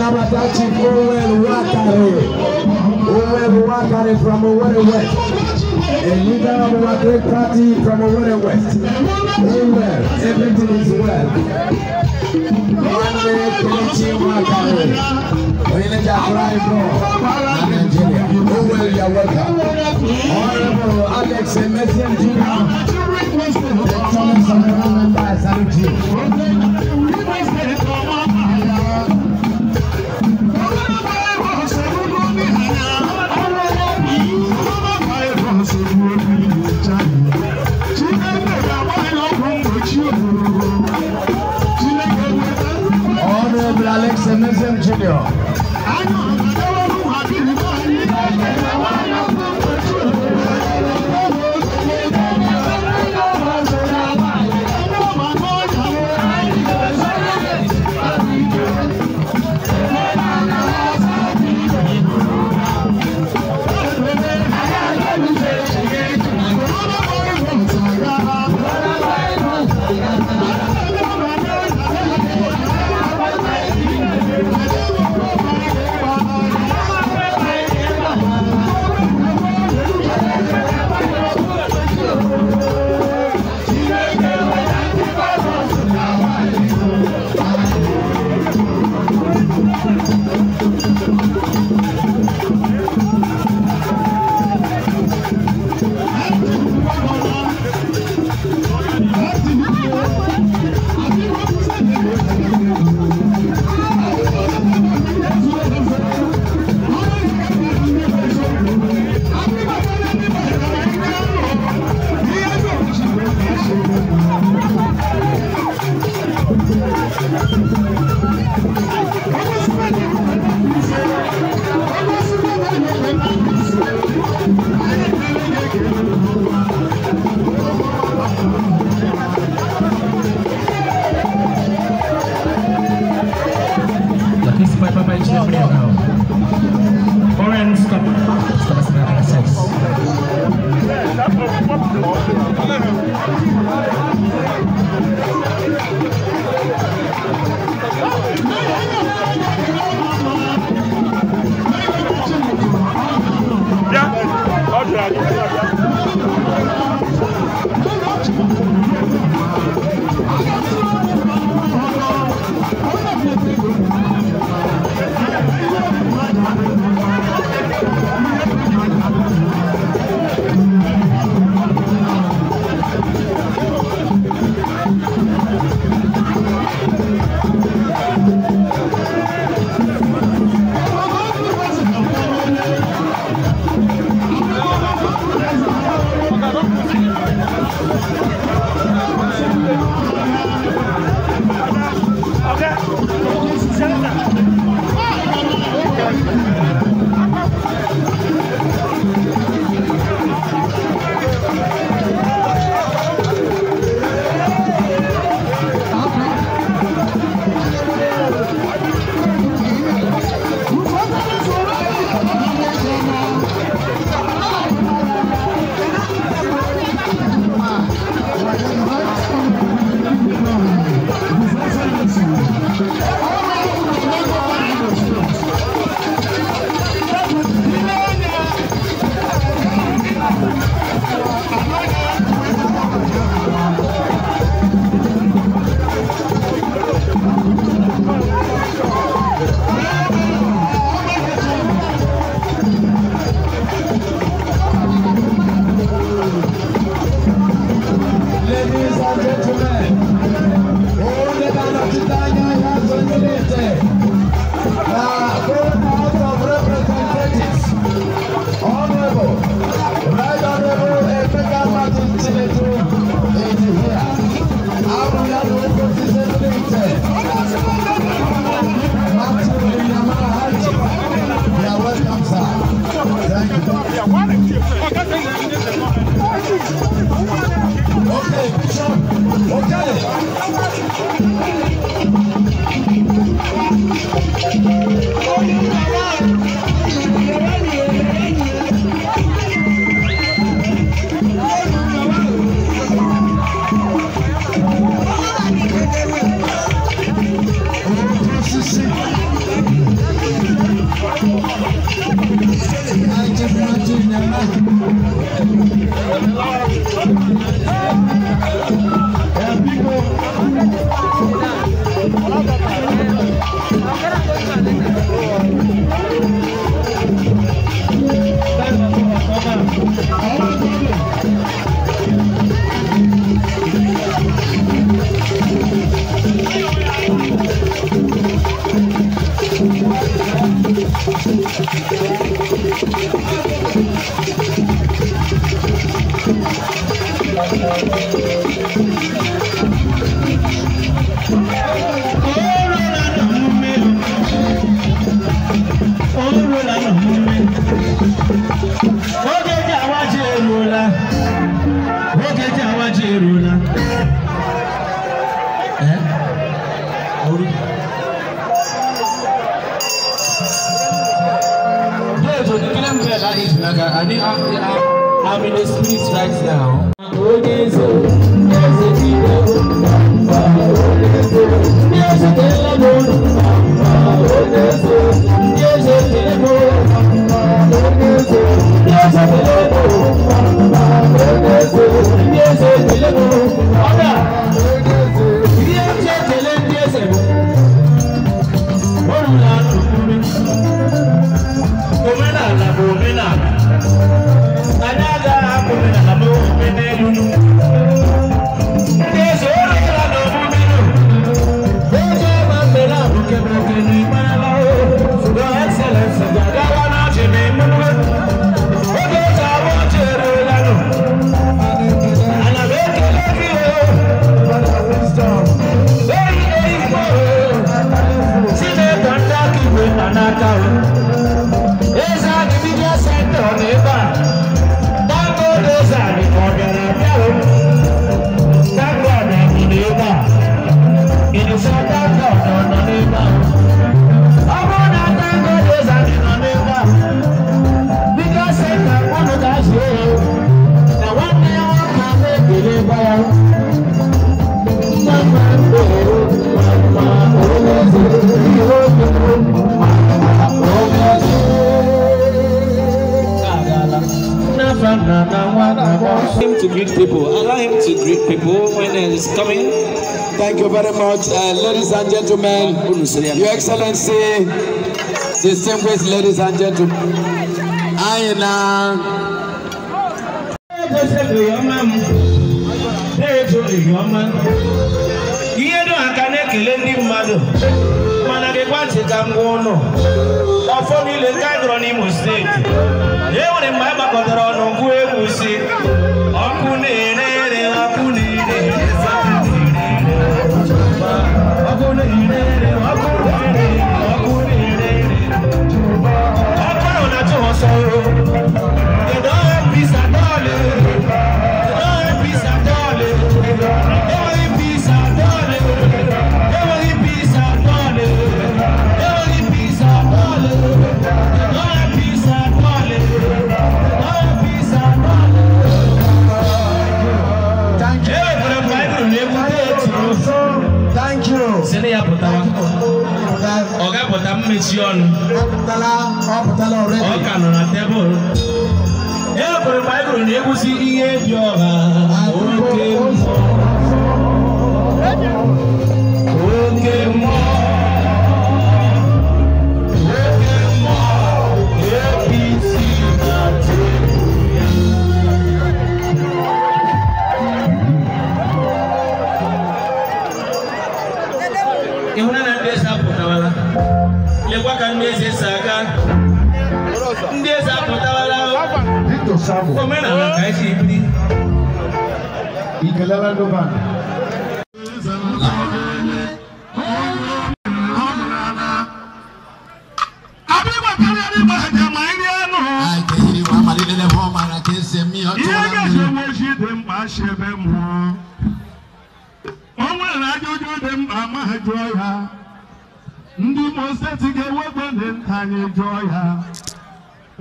Kabatachi Owel Wakare. Owel Wakare from Owerri West. And leader of our great party from Owerri West. Owel, everything is well. Monday, Kenichi Wakare. Winneda Flybo, Nigeria. Owel, you're welcome. Honorable Alex and Emerson Jr. The Thomas of the Parliament and Saluti. Daqui se vai pra Bahia de Depressão. Gracias. Thank you. I'm in the streets right now. Thank you. Allow him to greet people. Allow him to greet people when he is coming. Thank you very much, uh, ladies and gentlemen. Your Excellency, distinguished ladies and gentlemen. Ayina. ihe dum aka na-ekele ndị mmadụ mana gịkwa ntị ka m ọfọ niile nke a gụrụ n'Imo steeti e nwere mgbe a gbakọtara ọnụ mmechi ọnụ ọ ka table? na tebụl e kwere baịbụl na egwusi ihe dị ọha samu ikalala ndo bana o nwere ajụjụ dị ndị Imo steeti ga-ewegbe ndị nta anyị jụọ ya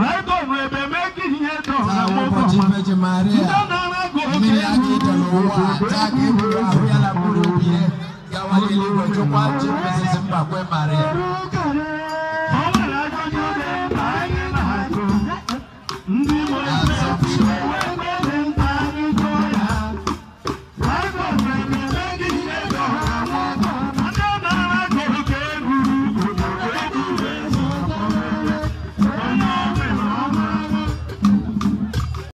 Rẹ́gọ̀nù ẹ̀bẹ̀ méjì yẹn tọ̀ àwọn ọkọ̀ ma. Ìdáná rẹ́gọ̀ òkè ìlú òkè ìgbé ìlú òkè. Gawale ni wọ́n jókòó àti pèsè sí pàpẹ́ màrẹ́.